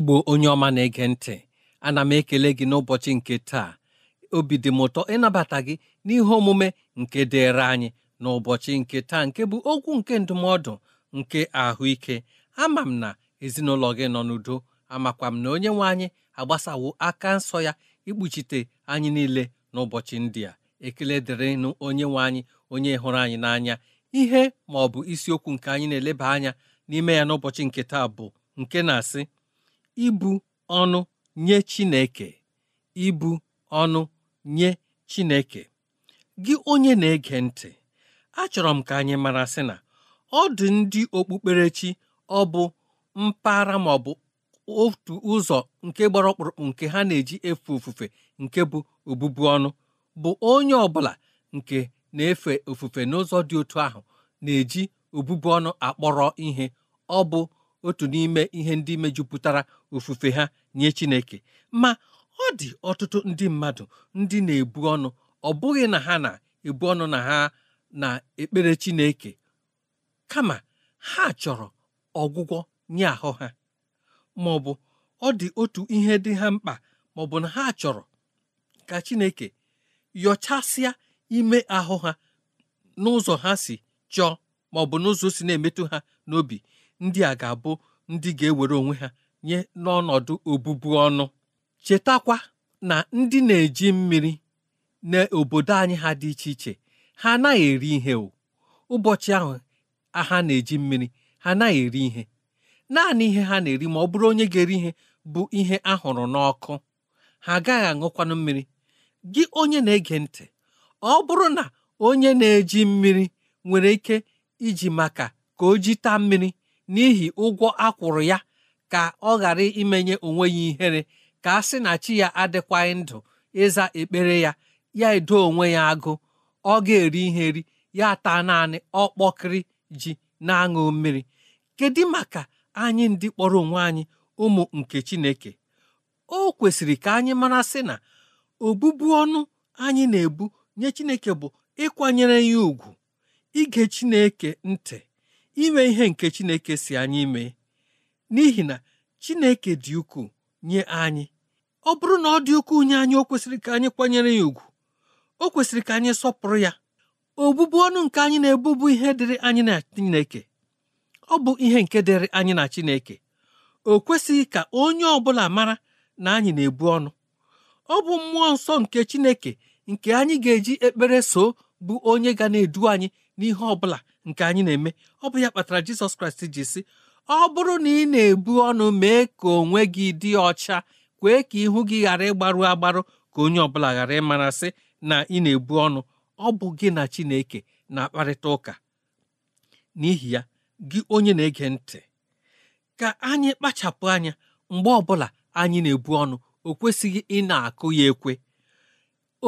igbo onye ọma na-ege ntị ana m ekele gị n'ụbọchị nke taa obi dị m ụtọ ịnabata gị n'ihe omume nke dịịrị anyị n'ụbọchị nke taa nke bụ okwu nke ndụmọdụ nke ahụike ama m na ezinụlọ gị nọ n'udo amakwa m na onye nwe anyị agbasawo aka nsọ ya ikpuchite anyị niile n'ụbọchị ndị a ekele dịrịnụ onye nwe anyị onye hụrụ anyị n'anya ihe ma ọ bụ isiokwu nke anyị na-eleba anya n'ime ya n'ụbọchị nke taa bụ nke na-asị ibu ọnụ nye Chineke ibu ọnụ nye Chineke gị onye na-ege ntị achọrọ m ka anyị mara sị na ọ dị ndị okpukperechi ọ bụ mpaghara ma ọ bụ otu ụzọ nke gbara ọkpụrụkpụ nke ha na-eji efe ofufe nke bụ obubu ọnụ bụ onye ọbụla nke na-efe ofufe n'ụzọ dị otu ahụ na-eji obụbu ọnụ akpọrọ ihe ọ bụ otu n'ime ihe ndị mejupụtara ofufe ha nye Chineke ma ọ dị ọtụtụ ndị mmadụ ndị na-ebu ọnụ ọ bụghị na ha na-ebu ọnụ na ha na-ekpere Chineke kama ha chọrọ ọgwụgwọ nye ahụ ha ma ọ ọ dị otu ihe dị ha mkpa ma ọ bụ na ha chọrọ ka Chineke yọchasịa ime ahụ ha n'ụzọ ha si chọọ ma n'ụzọ si na-emetụ ha n'obi ndị a ga-abụ ndị ga-ewere onwe ha nye n'ọnọdụ obubu ọnụ chetakwa na ndị na-eji mmiri n'obodo anyị ha dị iche iche ha anaghị eri ihe o ụbọchị ahụ ha na-eji mmiri ha anaghị eri ihe naanị ihe ha na-eri ma ọ bụrụ onye ga-eri ihe bụ ihe a hụrụ n'ọkụ ha agaghị aṅụkwanụ mmiri gị onye na-ege ntị ọ bụrụ na onye na-eji mmiri nwere ike iji maka ka o jita mmiri n'ihi ụgwọ akwụrụ ya ka ọ ghara imenye onwe ya ihere ka a sị na chi ya adịkwaghị ndụ ịza ekpere ya ya edo onwe ya agụ ọ ga-eri ihe ri ya taa naanị ọkpọkịrị ji na-aṅụ mmiri kedu maka anyị ndị kpọrọ onwe anyị ụmụ nke Chineke o kwesịrị ka anyị mara sị na obụbu ọnụ anyị na-ebu nye Chineke bụ ịkwanyere ya ùgwù ige Chineke ntị ime ihe nke Chineke si anyị mee n'ihi na Chineke dị ukwuu nye anyị ọ bụrụ na ọ dị ukwuu nye anyị o kwesịrị ka anyị kwanyere ya ùgwù o kwesịrị ka anyị sọpụrụ ya obubu ọnụ nke anyị na-ebubu ihe dịrị anyị na Chineke ọ bụ ihe nke dịrị anyị na Chineke o kwesịghị ka onye ọ bụla mara na anyị na-ebu ọnụ ọ bụ mmụọ nsọ nke Chineke nke anyị ga-eji ekpere so bụ onye ga na-edu anyị n'ihe ọ bụla nke anyị na-eme ọ bụ ya kpatara jizọs kraịst ji sị ọ bụrụ na ị na-ebu ọnụ mee ka onwe gị dị ọcha kwee ka ihu gị ghara ịgbarụ agbarụ ka onye ọbụla ghara ịmarasị na ị na-ebu ọnụ ọ bụ gị na chineke na-akparịta ụka n'ihi ya gị onye na-ege ntị ka anyị kpachapụ anya mgbe ọ bụla anyị na-ebu ọnụ o kwesịghị ị na-akụ ya ekwe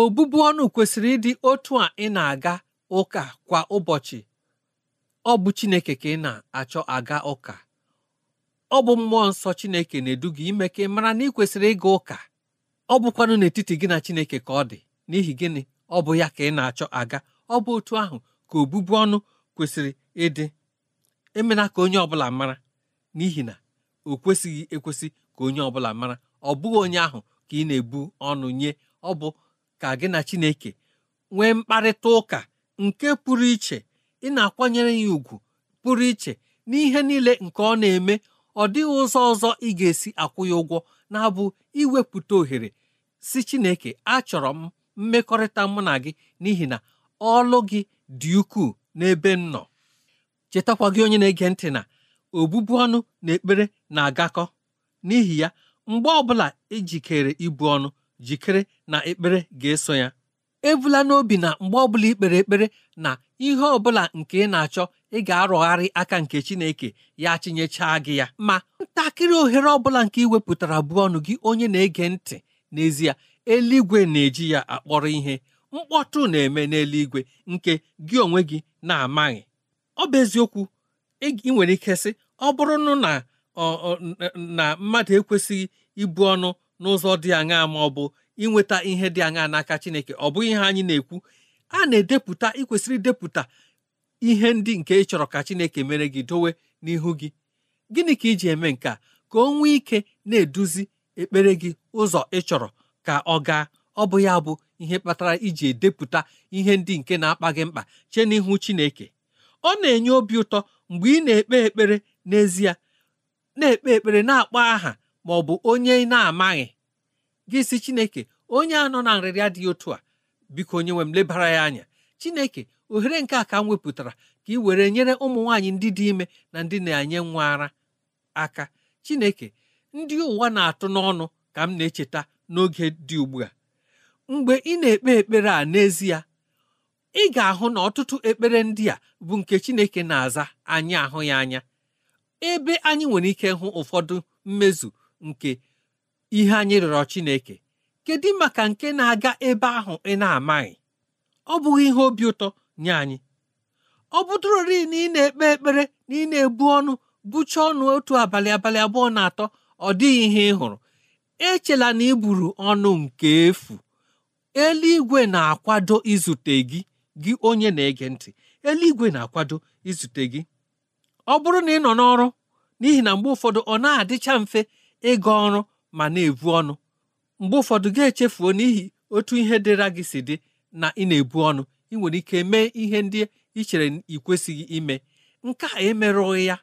obụbụ ọnụ kwesịrị ịdị otu a ị na-aga ụka kwa ụbọchị ọ bụ Chineke ka ị na-achọ aga ụka ọ bụ mmụọ nsọ Chineke na-edu gị ime ka ị mara na ị kwesịrị ịga ụka ọ bụkwanụ n'etiti gị na Chineke ka ọ dị n'ihi gịnị ọ bụ ya ka ị na-achọ aga ọ bụ otu ahụ ka obubu ọnụ kwesịrị ịdị emela ka onye ọbụla mara n'ihi na o kwesịghị ekwesị ka onye ọbụla mara ọ bụghị onye ahụ ka ị na-ebu ọnụ nye ọ bụ ka gị na Chineke nwee mkparịta ụka nke pụrụ iche ị na-akwanyere ya ùgwù pụrụ iche n'ihe niile nke ọ na-eme ọ dịghị ụzọ ọzọ ị ga-esi akwụ ya ụgwọ na-abụ iwepụta ohere si Chineke achọrọ m mmekọrịta mụ na gị n'ihi na ọlụ gị dị ukwuu n'ebe m nọ chetakwa gị onye na-ege ntị na obụbu ọnụ na ekpere na-agakọ n'ihi ya mgbe ọbụla ijikere e ibu ọnụ jikere na ekpere ga-eso ya ebula n'obi na mgbe ọ bụla ikpere ekpere na ihe ọbụla nke ị na-achọ ị ga-arọgharị aka nke Chineke ya chinyechaa gị ya ma ntakịrị ohere ọbụla nke ị wepụtara bụ ọnụ gị onye na-ege ntị n'ezie eluigwe na-eji ya akpọrọ ihe mkpọtụ na-eme n'eluigwe nke gị onwe gị na-amaghị ọ bụ eziokwu ị nwere ike sị ọ bụrụ na na mmadụ ekwesịghị ibu ọnụ n'ụzọ dị aṅaa ma ọ inweta ihe dị aṅa n'aka Chineke ọ bụghị ihe anyị na-ekwu a na-edepụta ịkwesịrị idepụta ihe ndị nke ị chọrọ ka Chineke mere gị dowe n'ihu gị gịnị ka iji eme nke a ka o nwee ike na-eduzi ekpere gị ụzọ ị chọrọ ka ọ gaa ọ bụ ya bụ ihe kpatara iji edepụta ihe ndị nke na-akpa gị mkpa chee n'ihu Chineke ọ na-enye obi ụtọ mgbe ị na-ekpe ekpere n'ezie na-ekpe ekpere na-akpọ aha ma ọ bụ onye ị na-amaghị gị si chineke onye a nọ na nrịrịa dị otu a biko onye nwe m lebara ya anya chineke ohere nke a ka m wepụtara ka ị were nyere ụmụ nwaanyị ndị dị ime na ndị na-enye nwa ara aka chineke ndị ụwa na-atụ n'ọnụ ka m na-echeta n'oge dị ugbu a mgbe ị na-ekpe ekpere a n'ezie ị ga-ahụ na ọtụtụ ekpere ndị a bụ nke chineke na-aza anyị ahụ ya anya ebe anyị nwere ike hụ ụfọdụ mmezu nke ihe anyị rịọrọ Chineke kedu maka nke na-aga ebe ahụ ị na-amaghị ọ bụghị ihe obi ụtọ nye anyị ọ bụdụrori na ị na-ekpe ekpere na ị na-ebu ọnụ bụcha ọnụ otu abalị abalị abụọ na atọ ọ dịghị ihe ị hụrụ echela na ị buru ọnụ nke efu eluigwe na-akwado izute gị gị onye na-ege ntị eluigwe na-akwado izute gị ọ bụrụ na ị nọ n'ọrụ n'ihi na mgbe ụfọdụ ọ na-adịcha mfe ịga ọrụ ma na-ebu ọnụ mgbe ụfọdụ gị echefuo n'ihi otu ihe dịra gị si dị na ị na-ebu ọnụ ị nwere ike mee ihe ndị ị chere ị kwesịghị ime nke a emerụghị ya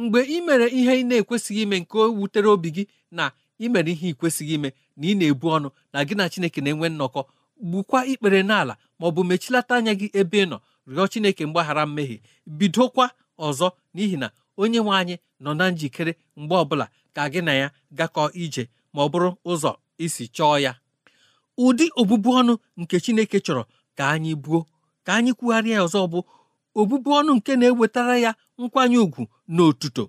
mgbe ị mere ihe ị na-ekwesịghị ime nke wutere obi gị na ị mere ihe ị kwesịghị ime na ị na-ebu ọnụ na gị na Chineke na-enwe nnọkọ gbukwa ikpere n'ala ma ọ bụ mechilata anya gị ebe ị nọ rịọ Chineke mgbaghara mmehie bidokwa ọzọ n'ihi na onye nwe anyị nọ na njikere mgbe ọbụla ka gị na ya gakọ ije ma ọ bụrụ ụzọ isi chọọ ya ụdị obụbu ọnụ nke Chineke chọrọ ka anyị buo ka anyị kwugharịa ọzọ bụ obụbu ọnụ nke na-ewetara ya nkwanye ùgwù na otuto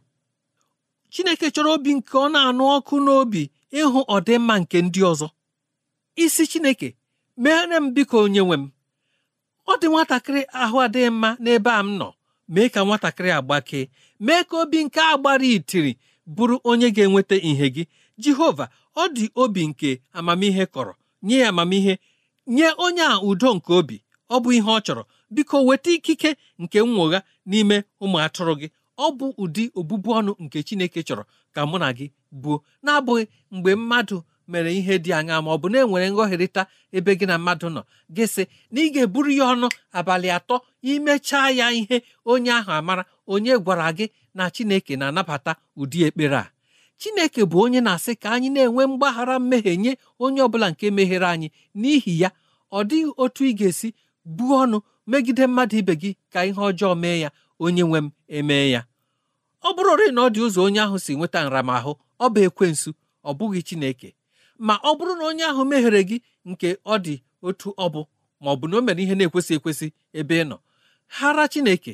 Chineke chọrọ obi nke ọ na-anụ ọkụ n'obi ịhụ ọdịmma nke ndị ọzọ isi Chineke meere m biko onye nwe m ọ dị nwatakịrị ahụ adịghị mma n'ebe a m nọ mee ka nwatakịrị agbakee mee ka obi nke a gbara itiri bụrụ onye ga-enweta ìhè gị jehova ọ dị obi nke amamihe kọrọ nye ya amamihe nye onye a udo nke obi ọ bụ ihe ọ chọrọ biko weta ikike nke nwụgha n'ime ụmụ atụrụ gị ọ bụ ụdị obụbu ọnụ nke chineke chọrọ ka mụ na gị buo na-abụghị mgbe mmadụ mere ihe dị anya ma ọ bụ na enwere nghọherịta ebe gị na mmadụ nọ gị sị na ị ga-eburu ya ọnụ abalị atọ imechaa ya ihe onye ahụ amara onye gwara gị na Chineke na-anabata ụdị ekpere a Chineke bụ onye na-asị ka anyị na-enwe mgbaghara mmehie nye onye ọbụla nke mehiere anyị n'ihi ya ọ dịghị otu ị ga-esi buo ọnụ megide mmadụ ibe gị ka ihe ọjọọ mee ya onye nwe m emee ya ọ bụrụrị na ọ dị ụzọ onye ahụ si nweta nramahụ ọ bụ ekwensu ọ bụghị Chineke ma ọ bụrụ na onye ahụ meghere gị nke ọ dị otu ọ bụ ma ọ bụ na o mere ihe na-ekwesị ekwesị ebe ị nọ hara Chineke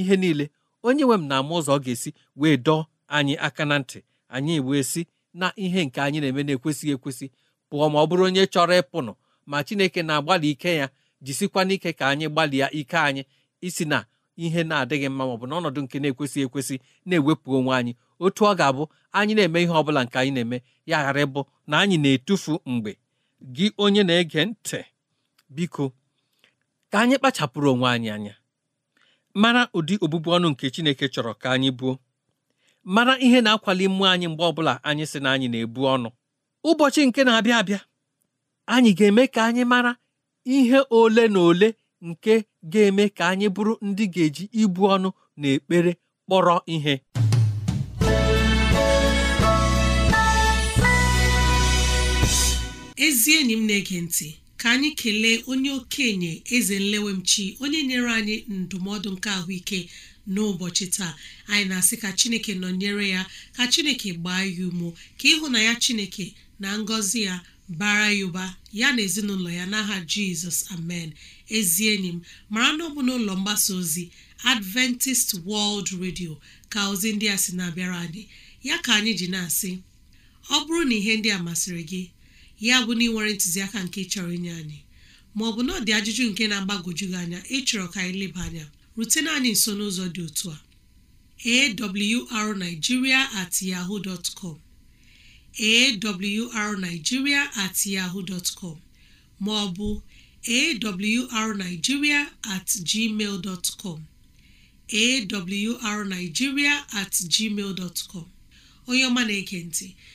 ihe niile onye nwe m na-ama ụzọ ọ ga-esi wee dọọ anyị aka na ntị anyị wee si na ihe nke anyị na-eme na-ekwesịghị ekwesị pụọ ma ọ bụrụ onye chọrọ ịpụnụ ma chineke na-agbalị ike ya jisikwa n'ike ka anyị gbalịa ike anyị isi na ihe na-adịghị mma maọbụ ọnọdụ nke na-ekwesịghị ekwesị na-ewepụ onwe anyị otu ọ ga-abụ anyị na-eme ihe ọ bụla nke anyị na-eme ya ghara ịbụ na anyị na-etufu mgbe gị onye na-ege ntị biko ka anyị kpachapụrụ onwe anyị anya mara ụdị obụbu ọnụ nke Chineke chọrọ ka anyị buo mara ihe na-akwali mmụọ anyị mgbe ọbụla anyị si na anyị na-ebu ọnụ ụbọchị nke na-abịa abịa anyị ga-eme ka anyị mara ihe ole na ole nke ga-eme ka anyị bụrụ ndị ga-eji ibu ọnụ na ekpere kpọrọ ihe ezi enyi m na ntị ka anyị kelee onye okenye eze nlewemchi onye nyere anyị ndụmọdụ nke ahụike n'ụbọchị taa anyị na-asị ka chineke nọnyere ya ka chineke gbaa ya umo ka ịhụ na ya chineke na ngọzi ya bara ya ụba ya na ezinụlọ ya n'aha jizọs amen ezi enyi m mara na ọ n'ụlọ mgbasa ozi adventist world radio ka ozi ndị a sị na-abịara anyị ya ka anyị ji na-asị ọ bụrụ na ihe ndị a masịrị gị ya bụ na ị ntụziaka nke chọrọ inye anyị ma ọ bụ na ọ dị ajụjụ nke na-agbagoju gị anya ịchọrọ ka anyị leba anya rutena anyị nso n'ụzọ dị otu a arigiria at yahoo dot com at yahoo dot com ma ọ bụ at gmail dot com at gmail dot onye ọma na-ege ntị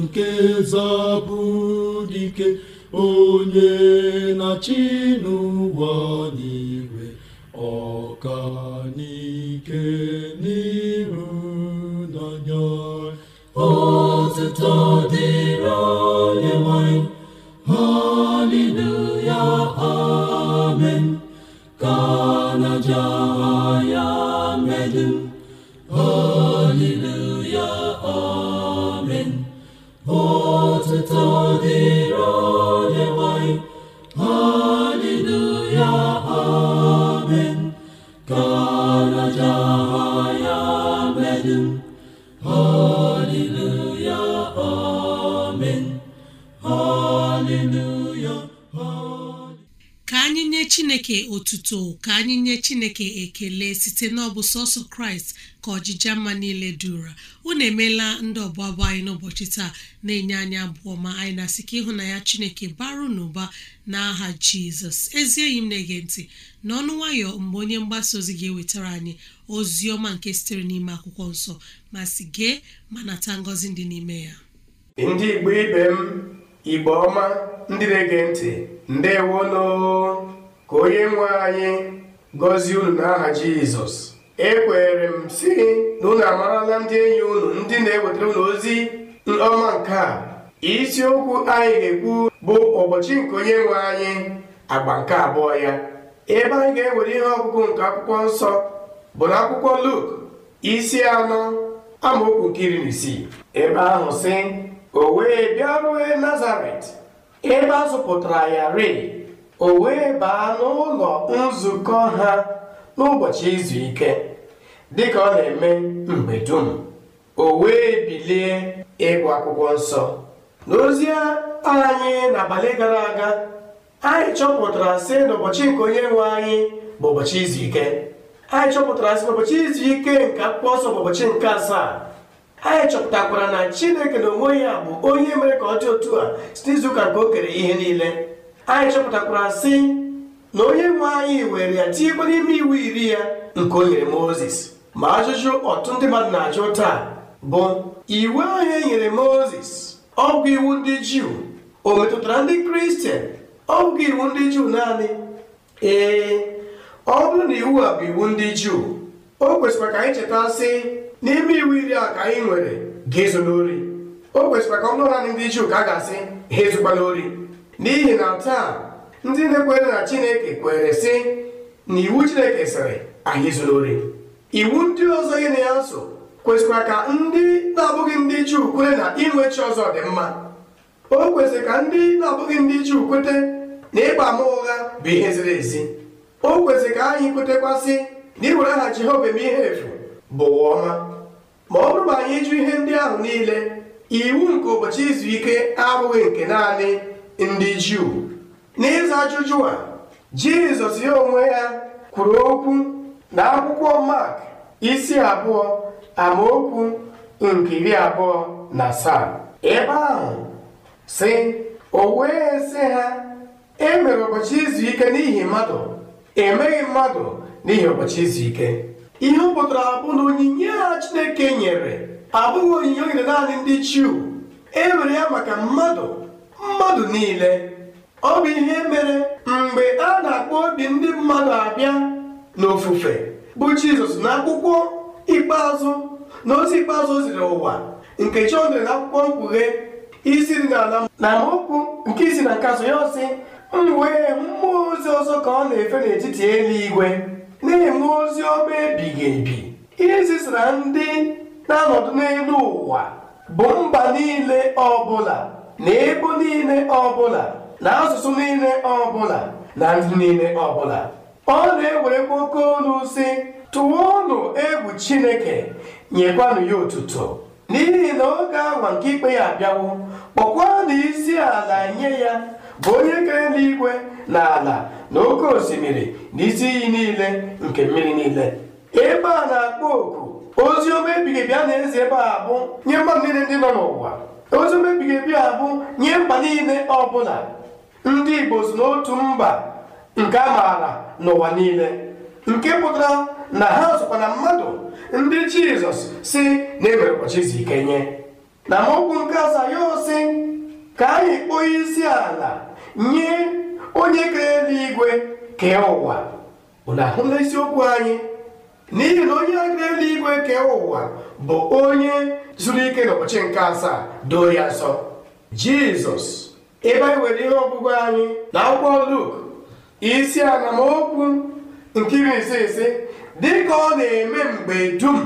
nke zọpụ ka anyị nye Chineke otuto ka anyị nye Chineke ekele site n'ọbụ sọsọ Kraịst ka ọjịja mma niile dura unu emeela ndị ọbụla bụ anyị n'ụbọchị taa na-enye anyị abụọ ma anyị na-asị ka ya Chineke baru n'ụba n'aha Jizọs ezi enyi m na-ege ntị n'ọnụ nwayọ mgbe onye mgbasa ozi ga-ewetara anyị ozi ọma nke sitere n'ime akwụkwọ nsọ ma si gee ma nata ngọzi dị n'ime ya ndị igbo ibe m igbo ọma ndị na-ege ntị ndewono ka onye nwe anyị gọzie unu n'aha jizọs ekwere m si na unu amarala ndị enyi unu ndị na-ewetara unu ozi ọma nke a isiokwu anyị ga-ekwu bụ ụbọchị nke onye nwe anyị agba nke abụọ ya ebe anyị ga-ewere ihe ọgụgụ nke akwụkwọ nsọ bụ na akwụkwọ Luk isi anọ amaokwu nke na isii ebe ahụ si o wee bịaruo Nazaret ebe azụpụtara ya rịị o wee baa n'ụlọ nzukọ ha n'ụbọchị izu ike dị ka ọ na-eme mgbe dum o wee bilie ịgụ akwụkwọ nsọ n'ozi anyị n'abalị gara aga anyị chọpụtara si na ụbọchị nke onye nwe anyị bụ ụbọchị izu ike anyị chọpụtara si na izu ike nke akwụkwọ ọsọ bụ ụbọchị nke asaa anyị chọpụtakwara na chineke na onwe ya bụ onye mere ka ọ dị otu a site izuụka nke o kere ihe niile anyị chọpụtakwara si na onye nwe anyị were ya tinyekwa n'ime iwu iri ya nke o nyere Mozis ma ajụjụ ọtụtụ ndị mmadụ na-ajụ taa bụ iwu ahụ e nyere Mozis, ọgwụ iwu ndị juu o metụtara ndị kristian ọ bụghị iwu ndị juu naanị ee ọ bụrụ na iwu a bụ iwu ndị juu o kwesịrị ka anyị cheta sị n'ime iwu iri a ka anyị nwere ga-ezo n'ori o kwesịrị ka ọ naanị ndị juu ka a ga-asị ha ezukwana n'ori. n'ihi na taa ndị na-ekwere na chineke kwere sị na iwu chineke sịrị anyị zuru ori iwu ndị ọzọ gị ya nso kwesịkwara ka ndị na-abụghị ndị juu kwere na inwe chi ọzọ dị mma o kwesịrị ka ndị na-abụghị ndị Juu kwete na ịgba ama ụgha bụ ihe ziri ezi o kwesịrị ka anyị kwetekwasị na iwere aha Jehova eme ihe efu bụ ọma ma ọ bụrụ ma anyị jụ ihe ndị ahụ niile iwu nke ụbọchị izu ike abụghị nke naanị ndị Juu n'ịza ajụjụ a Jizọs ya onwe ya kwuru okwu na akwụkwọ Mark isi abụọ amaokwu nke iri abụọ na asaa ebe ahụ sị o wee sị ha e mere ụbọchị izu ike n'ihi mmadụ emeghị mmadụ n'ihi ụbọchị izu ike ihe ọ pụtara abụ na onyinye a Chineke nyere abụghị onyinye o naanị ndị Juu e nwere ya maka mmadụ mmadụ niile ọ bụ ihe mere mgbe a na-akpọ obi ndị mmadụ abịa n'ofufe bụ Jizọs na akwụkwọ ikpeazụ na ozi ikpeazụ oziri ziri ụwa nke Jọn dere na akwụkwọ mkpughe isi dị n'ala na amaokwu nke isi na nke azụ ya ọsị m wee mmụọ ozi ọzọ ka ọ na-efe n'etiti eluigwe na-enwe ozi ọma ebighị ebi ihe ndị na-anọdụ n'elu ụwa bụ mba niile ọbụla na ebo niile ọbụla na asụsụ niile ọbụla na ndị niile ọbụla ọ na-ewerekwa oke olu si tụwa ọnụ egwu chineke nyekwanụ ya otuto n'ihi na oge awa nke ikpe ya abịawo na isi ala nye ya bụ onye kere eluigwe na ala na oke osimiri na isi iyi niile nke mmiri niile ebe a na-akpọ oku ozi ọma ebi a na eze ebe a bụ nye mba niile ndị nọ n'ụwa ozi ọma ebighị ebi a bụ nye mba niile ọbụla ndị igbo si n'otu mba nke a maara n'ụwa niile nke pụtara na ha sokwa na mmadụ ndị jizọs si na e mere ụbọchị izu ike nye na mokwu nke asaa si ka anyị kpọọ isi ala nye onye kere eluigwe kee ụwa unu ahụla anyị n'ihi na onye kere eluigwe kee ụwa bụ onye zuru ike n'ụbọchị nke asaa doo ya nsọ jizọs ebe anyị nwere ihe ọgwụgwụ anyị na akwụkwọ luk isi ala ma nke iri ise ise dịka ọ na-eme mgbe dum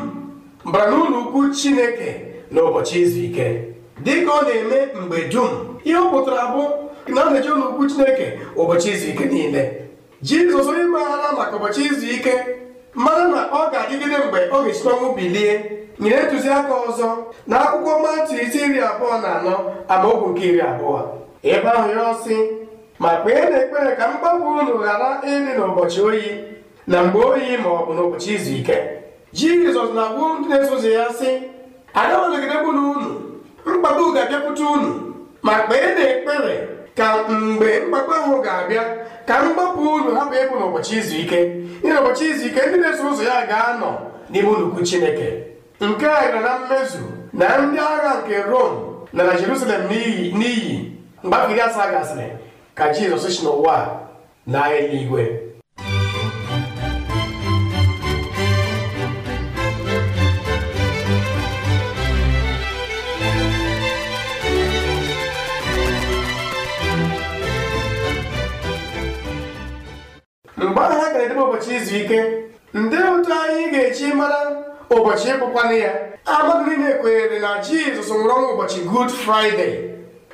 bara n'ụlọ ukwu chineke n'ụbọchị izu ike ka ọ na-eme mgbe dum ihe ọ pụtara bụ na ọ na ụlọ ukwu chineke ụbọchị izu ike niile jizọs onye maara maka ụbọchị izu ike mara na ọ ga-adịgide mgbe ọ ga esite ọnwụ bilie nyere ntụziaka ọzọ na akwụkwọ mati isi iri abụọ na anọ amaokwu nke iri abụọ ebe ahụ ya ọsị ma kpee na ekpere ka mgbapụ unu ghara ịdị n'ụbọchị oyi na mgbe oyi ma ọ bụ n'ụbọchị izu ike jizọs na-agwa ndị na-eso ụzọ ya sị agawanagidebunu unu mkpagbu ga-abịapụta unu ma kpee na ekpere ka mgbe mkpagbu ahụ ga-abịa ka mgbapụ unu hapụ ịbụ n'ụbọchị izu ike ịna ụbọchị izu ike ndị na-eso ụzọ ya ga-anọ n'ime nnukwu chineke nke a gara na mmezu na ndị agha nke rom na na jerusalem n'iyi mgbe afọ iri asaa gasịrị ka jizọs si n'ụwa na eluigwe mgbe ahụ ha ga-edebe ụbọchị izu ike ndị otu anyị ga-echi mara ụbọchị ịbụkwanụ ya amadụ niile kwenyere na jizọs nwụrụ ọnwụ ụbọchị Gud friday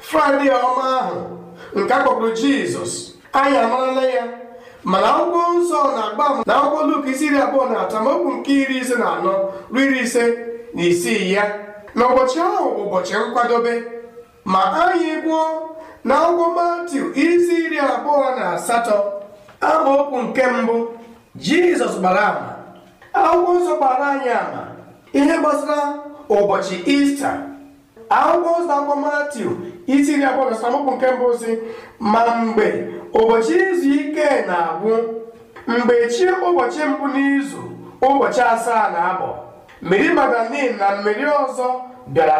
fraịde ọma ahụ nke akpọkpụrụ jizọs anyị amarala ya mana akwụkwọ nsọ na-agba ama na akwụkwọ luk isi iri abụọ na atọ amaokwu nke iri ise na anọ ruo iri ise na isii ya na ụbọchị ahụ bụ ụbọchị nkwadobe ma anyị gwụọ na akwụkwọ matiu isi iri abụọ na asatọ okwu nke mbụ jizọs gbara ama akwụkwọ nsọ gbara anyị ama ihe gbasara ụbọchị ista akwụkwọ nsọ akwụkwọ matiu isi iri abụọ na nke mbụ si ma mgbe ụbọchị izu ike na-agwụ mgbe chi ụbọchị mbụ n'izu ụbọchị asaa na abụọ meri magdalin na mmeri ọzọ bịara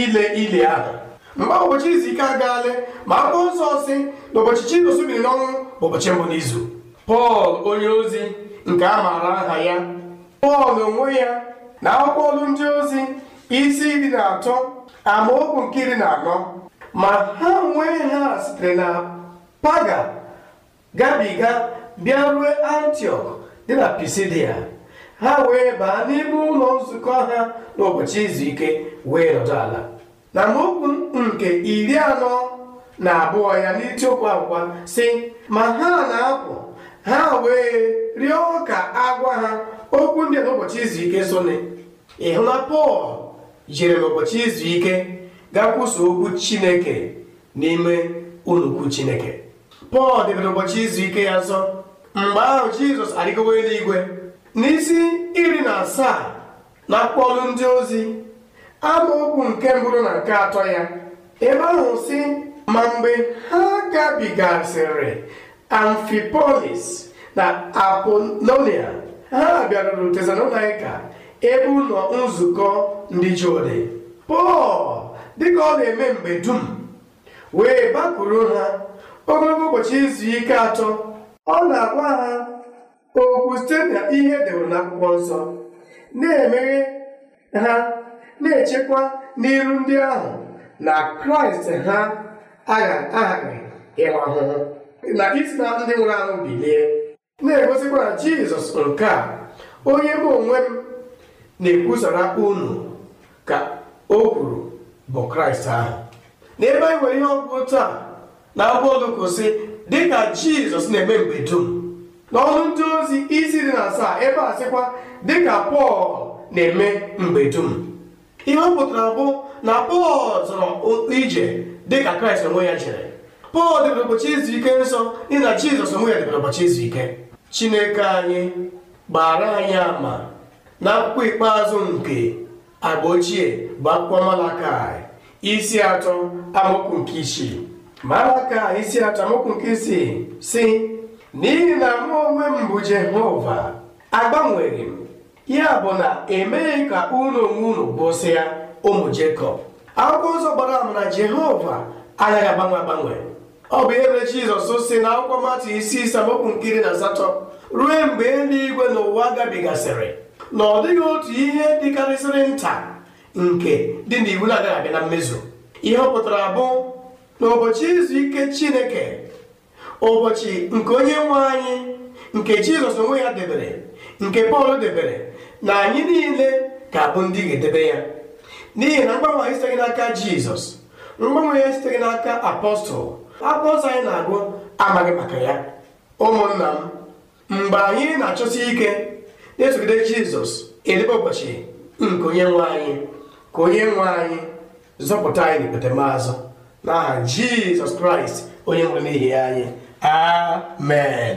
ile ili ahụ Mgbe ụbọchị izu ike agaala ma akwụkwọ nsọ si na ụbọchị Jizọs biri n'ọnwụ bụ ụbọchị mbụ n'izu Pọl onye ozi nke a maara aha ya Pọl onwe ya na akwụkwọ ọlụ ndị ozi isi iri na atọ amaokwu nke iri na anọ ma ha nwee ha sitere na paga gabiga bịa rue antiok dị na pisidia ha wee baa n'ime ụlọ nzukọ ha n'ụbọchị izu ike wee nọdụ ala na amaokwu nke iri anọ na abụọ ya n'itiokwu akwụkwọ si ma ha na-apụ ha wee rịọ ka agwa ha okwu ndị n'ụbọchị izu ike sone ịhụ na pọl jiri n'ụbọchị izu ike gakwuso okwu chineke n'ime unukwu chineke pọl debere ụbọchị izu ike ya nso mgbe ahụ jizọs arịgowo eluigwe n'isi iri na asaa na akpọlụ ndị ozi okwu nke mbụrụ na nke atọ ya ebe ahụ si ma mgbe ha gabigasịrị amfipolis na apolonia ha bịaruru tesalonika ebe ụlọ nzukọ ndị jode pọl dịka ọ na-eme mgbe dum wee bakwuru ha ogologo ụbọchị izu ike atọ ọ na-agwa ha okwu site na ihe edewere n'akwụkwọ nsọ na-emeghe ha na-echekwa n'iru ndị ahụ na kraịst ha aghaghị ịwa ahụhụ na isi na ndị nwụrụ anwụ bilie na-egosikwa jizọs nke a onye bụ onwe m na-ekwusara unu ka o kwuru bụ kraịst ahụ N'ebe anyị nwere ihe otu a, na akwụkwọ olukosi dịka jizọs na-eme mgbe dum n'ọnụ ndị ozi isi dị na asaa ebe a sịkwa dịka pọl na-eme mgbe dum ihe ọ pụtara bụ na pọl zọrọ ije dịka kraịst onwe ya jere pọl debere ụbọchị izu ike nsọ n'ihi jizọs onwe ya debere ụbọchị izu ike chineke anyị gbara anyị ama na akwụkwọ ikpeazụ nke agba ochie bụ akwụkwọ malakai isi atọ amaokwu nke isii malakai isi atọ amaokwu nke isii si n'ihi na mụ onwe m bụ jehova agbanweghị m ya bụ na emeghị ka unu onwe unu bụsịa ụmụ Jekọb akwụkwọ ụzọ gbara ama na Jehova agaghị agbanwe agbanwe ọ bụ ihe mere Jizọs si na akwụkwọ mmatụ isi isaokwu nkiri na asatọ ruo mgbe eluigwe na ụwa gabigasịrị na ọ dịghị otu ihe dịkarịsịrị nta nke dị n'iwu na-agaghị abịa na mmezu ihe ọ pụtara bụ n'ụbọchị izu ike Chineke ụbọchị nke onye nwe anyị nke Jizọs onwe ya debere nke Pọl debere na anyị niile ga-abụ ndị ga-edebe ya n'ihi na mgbanwe anyị siteghị n'aka jizọs mgbanwe ya siteghị n'aka apọstụl apọstụl anyị na-agụ amaghị maka ya ụmụnna m mgbe anyị na-achọsi ike na-esogide jizọs edebe ụbọchị nke onye nwe anyị ka onye nwe anyị zọpụta anyị n'ikpetemazụ n'aha jizọs kraịst onye nwere n'ihi anyị amen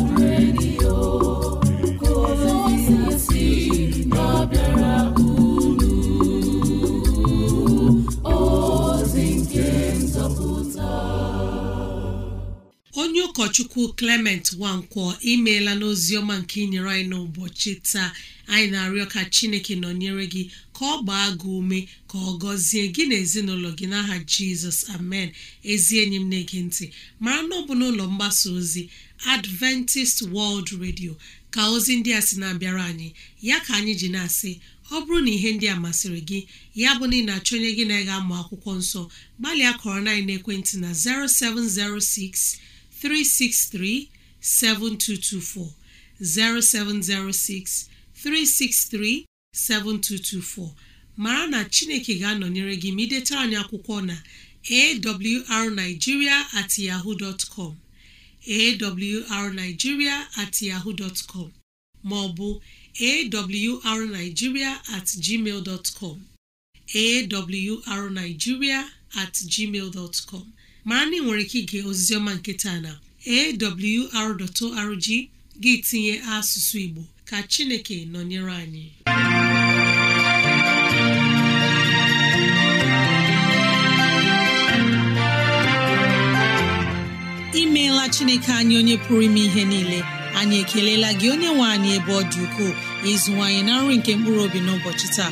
onye ụkọchukwu Clement Nwankwọ imeela n'ozi ọma nke inyere anyị n'ụbọchị taa anyị na-arịọ ka Chineke nọnyere gị ka ọ gbaa gị ume ka ọ gọzie gị na ezinụlọ gị n'aha Jizọs amen ezi enyi m na-ege ntị mara na ọ n'ụlọ mgbasa ozi Adventist World Radio ka ozi ndị a sị na-abịara anyị ya ka anyị ji na-asị ọ bụrụ na ihe ndị a masịrị gị ya bụ na ị na-achọ onye gị na-ega amụ akwụkwọ nsọ gbalịa kọrọ na ekwentị na 0706 363 7224 0706 363 7224 mara na Chineke ga-anọnyere gị ma anyị akwụkwọ na awrnigeria at yahoo dot com awrnigeria yahoo dot com ma ọ bụ awrnigeria at gmail dot com awrnigeria gmail dot com Ma na nwere ike ige oziziọma nke taa na awr.org gị tinye asụsụ Igbo ka Chineke nọnyere anyị imeela Chineke anyị onye pụrụ ime ihe niile anyị ekelela gị onye nwe anyị ebe ọ dị ukwuu ịzụwanyị na nri nke mkpụrụ obi n'ụbọchị taa